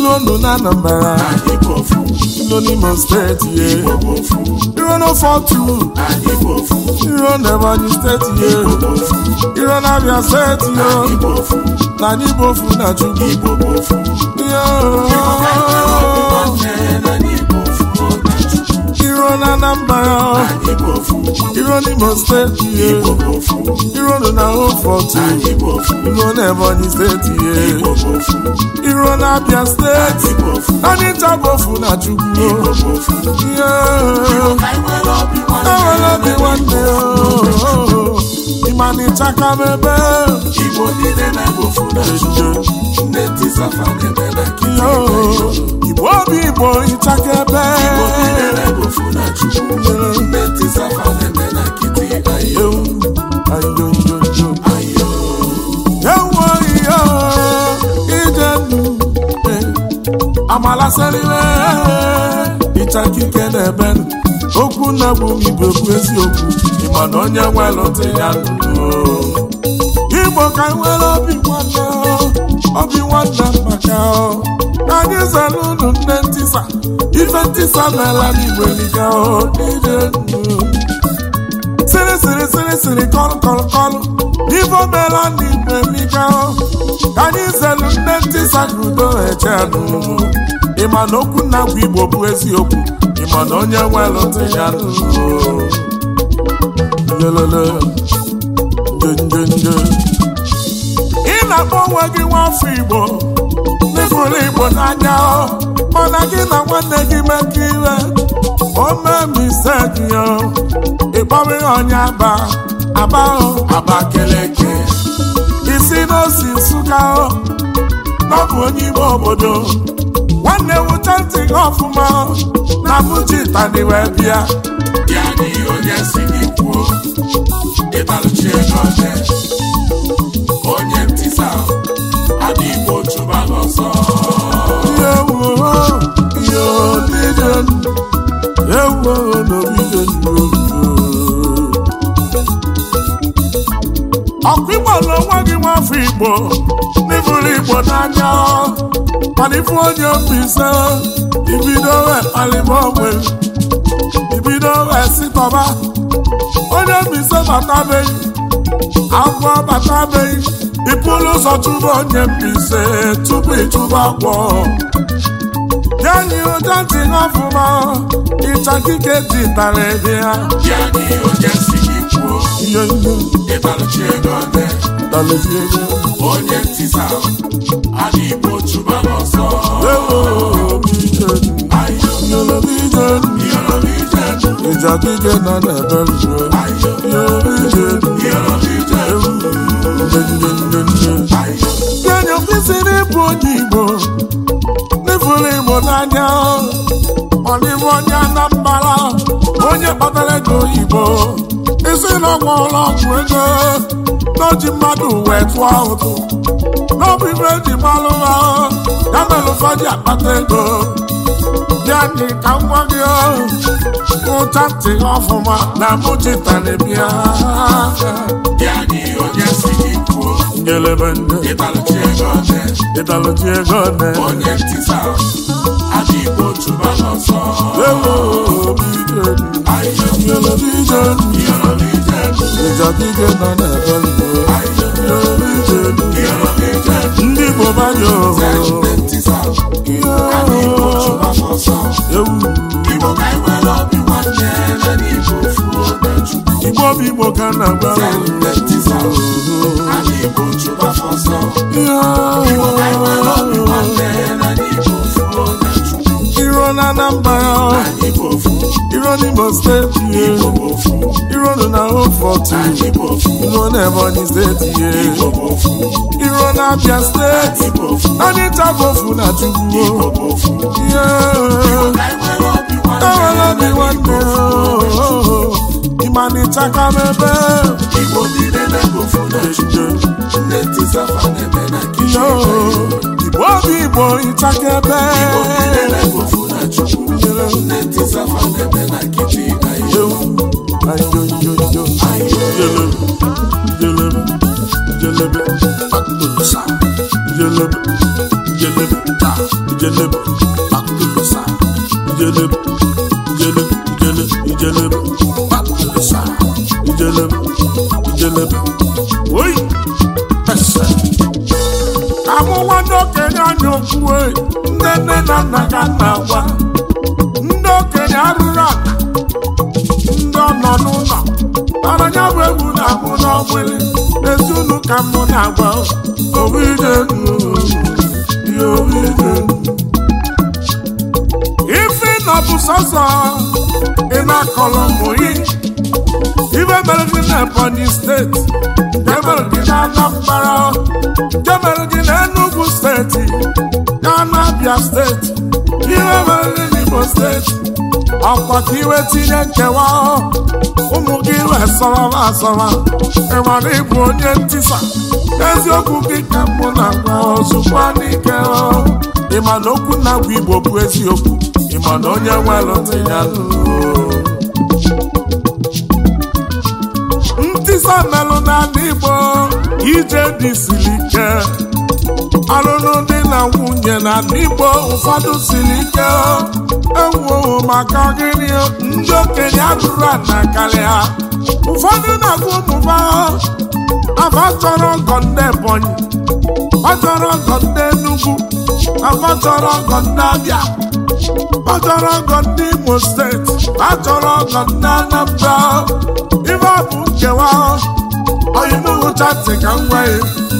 ilu ndụ na Anambra ilo steeti ye iro n'ofe ọtụ iro n'Ebonyi steeti ye iro n'Abia steeti yo na n'Igbofu na Chukwu iro na Iron steeti, State, yeah. Iron na Hopefort, Iron Ebonyi State, yeah. Iron na Chukwu, yeah. I will be Igbo niile na-egbo funa ejo, nne tisafa na-emebe kiri Igbo obi Igbo ọmụ m igbo bụ eziokwu ịma na onye nwelụta ya ndụ igbo ka nwere obi nwanne obi nwanne maka anyị zere unu nne ntịsa ife mela meela n'igbo ọ niile ndụ siri siri siri kọlụ kọlụ kọlụ n'ife omela ndị igbo emika ka anyị zelu nne ntị sakudo ịma na okwu na agwa igbo bụ eziokwu ịma na onye nwelụ ntị ya lelele ị na-akpọ onwe gị nwafọ igbo n'ịfụrụ igbo n'anya mana gị na nwanne gị mekọ iwe o mee misetyo ịkpọrọ ya onye aba aba abakeleke isi n'osi Nsụka n'ọbụ onye ime obodo nwanne wụcha ntị gị ọfụma na Fuji tani wee bịa ya n'ihi onye si gị kwuo ịbalụchi ego oje onye ntị sa adịghị igbo igbo n'ifuru igbo n'anya mana ifu onye ofe ise ibido wee kpalịba ibido wee sitọba onye ise agwọ ịpụrụ ụzọ chụba onye mfe ise tupu ịchụba agwọ Yanyi oje ti ń ịcha kike ji ti tàlẹ̀ ya. Yanyi oje mezie ego onye ntisa adị igbo chụba n'ọsọ ịjadịje na na-eberuo kenye kwesịrị ịbụ onye igbo n'ifuru igbo n'anya ọdịbụ onye anambara onye kpatara ego oyibo isi na ụlọ ọgwụ ego n'oji mmadụ wee tụọ ụtụ n'ọbụ ibe ji gbalụ ha ya mere ụfọdụ akpata ego bịa dị ka nwa gị nwụcha ntị ọfụma na mụchitara bịa kelebe ndị ịtalụchi ego ọdị ndị bụ igbo bụ igbo ka iro n'Imo steeti ihe iro nọ na Ofortu iro na Ebonyi steeti ihe iro na Abia steeti anyị tabofu na Chukwu ihe enwere obi nwanne ịmanịchaka m ebe Igbo obi Igbo ịchaka ebe lọ. Chineke sáfà lẹ́bẹ̀ náà kìtì àìjọ. Àìjọjọjọ. Jẹlẹbẹ jẹlẹbẹ jẹlẹbẹ akulusa. Jẹlẹbẹ jẹlẹbẹ ta jẹlẹbẹ ọbụla ezunu ka mụ na-agwa ife na bụ sọsọ ị na-akọrọ mụyi ibe mere gị na Ebonyi steeti jemere gị na Anambra jemere gị na enugwu steeti na abịa steeti ibe mere gị na Imo steeti ọkwa ka iwe tinye nkewa ụmụ gị resọrọ asọrọ ịmara ịbụ onye ntisa eziokwu gị ka mụ na-agwa ozugbo n'ike ịma na okwu na-agwa igbo bụ eziokwu ịma onye nwere ntị ya ntisa melụ n'ala igbo ije dị siri ike ọlụlụ dị na nwunye na n'igbo ụfọdụ siri ike ewuo maka gịnị ndị okenye adụrụ ana karịa ụfọdụ na-agụ ụmụba afa chọrọ ọgọ ndị ebonyi ọ chọrọ ọgọ ndị enugwu afa chọrọ ọgọ ndị abịa ọ chọrọ ọgọ ndị imo steeti ọ chọrọ ọgọ ndị anambra ife ọ bụ nkewa ọyịmụhụchatị ka m ya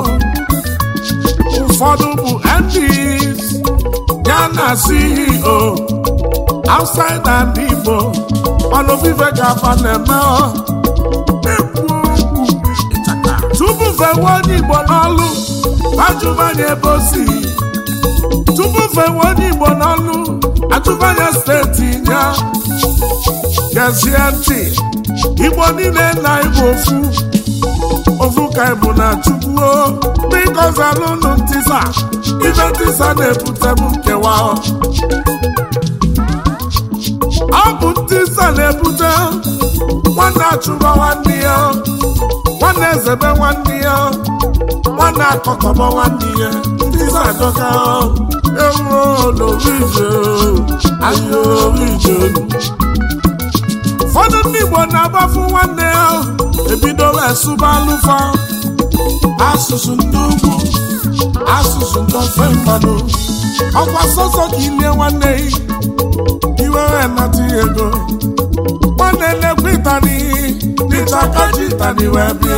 ụfọdụ bụ MPs ya na CEO outside and Igbo ọnụ vive ga-aba na-eme tupu fewe onye Igbo n'ọlụ ajụmanya ebe o si tupu fewe onye Igbo n'ọlụ ajụmanya steeti ya gezie ntị Igbo niile na Igbo ofu ovuka bụ na chukwuo biko zalụnụ ntisa ibe ntisa na ebute bụ nkewa ọ bụ ntisa na-ebute nwanne achụba nwanne ya nwanne ezebe nwanne ya nwanne akọkọba nwanne ya ntisa adọka ewuo n'obi ije ahịa obi ije ụfọdụ ndị Igbo na-agbafu nwanne ya ebidola esụba alụfa asụsụ ndị ugwu asụsụ ndị ofe ọkwa sọsọ ka ilie nwanne gị iwere nata ego nwanne na-ekwu ịtani ịta kaji wee bịa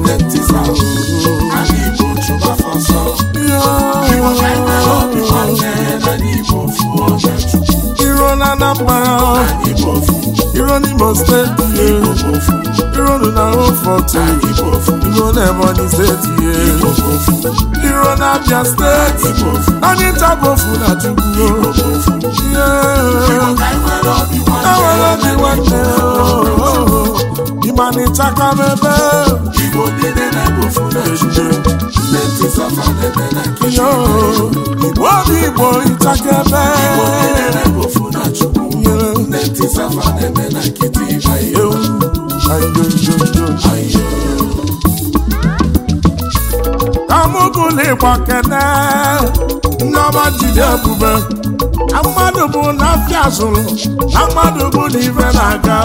Irọ́ mo steeti ye. Irọ́ ni na o fọ̀tì. Igbo na Ebonyi steeti na Abia steeti. na Chukwu. Enwere obi nwanne. Ịma na ịchaka oh. m igbo obi igbo ntakebe kamụgụlụ ịgba kene nneọma jide obube. mmadụ bụ na afịa zụrụ na mmadụ bụ na na-aga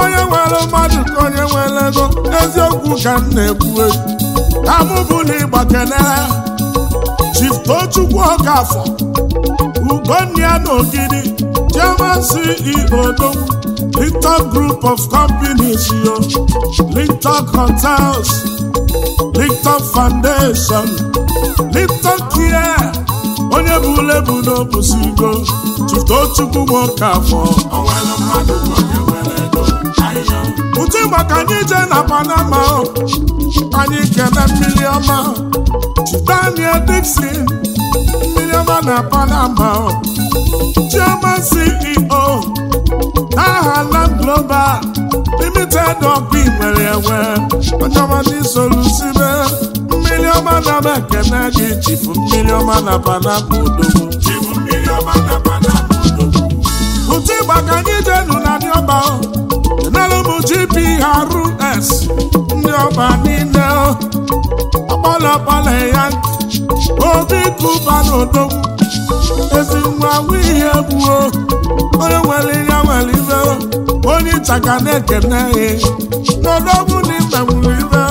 onye nwere mmadụ ka onye nwere ego eziokwu ka m na-ekwu na mụ bụ na ịgba kenere chiftochukwu ọkafọ ugonna na ogidi chairman ceo Linton Group of Companies yo Linton Hotels Linton Foundation Linton Care onye bụ ule bụ n'obusigo tụtụo chukwu bụ nke afọ ụtụ maka anyị jee na panama anyị kene mmiri ọma Daniel Dixon mmiri ọma na panama Chioma CEO aha Land Global Limited ọkụ inwere enwe onye ọma n'isolusibe ọma na m na gị chibu mmiri ọma na panapụ udogbu ụtụ ịgba anyị jenu na ndị ọba enelu gprs ndị ọba niile ya obi na ezi nwa ihe egbuo onye nwere ya nwere ibe onye ịchaka na-ekene ya n'odogwu na ibe nwere ibe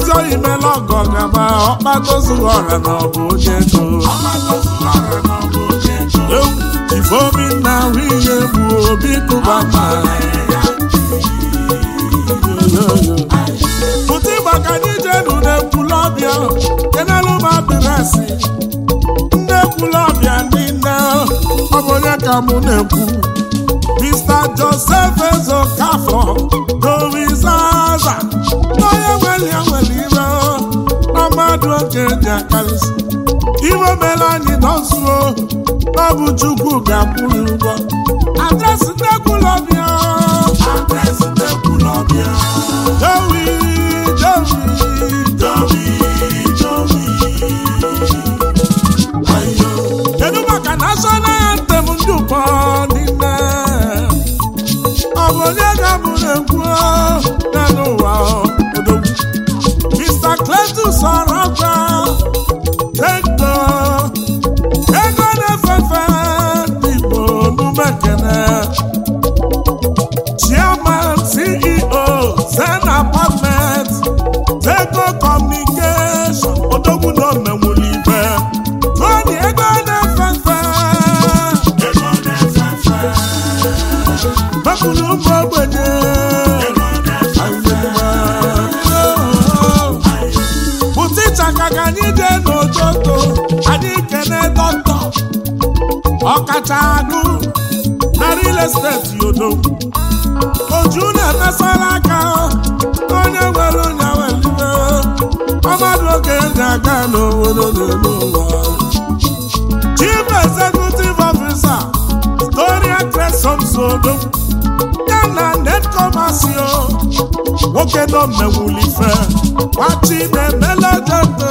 ezi imela ọgọ gaba ọkpatozuru ọra na ọbụ oche ego ifeobi na nwunye bụ obi kụba ma pụta maka anyị jenu n'ekwula ọbịa kenelu m adịresị ndị ekwula ọbịa ndị nne ọ bụ onye ka mụ na-ekwu Mr. na Ezokafọ Dorizaza onye nwere ya nwere eji akarịsị iwe mere anyị nọzuo ọ bụ Chukwu ga-akwụrụ ụgwọ adresị nnekwulọbịa ewi na-acha agụ na real estate yodo oju na-emesara aka onye nwere onye welibe ọmadụ oge ndị aga n'obodo n'elu ụwa chief executive officer Gloria Tresom Sodo ya na netkomasio nwoke nọ mmewulife machi na-emela jodo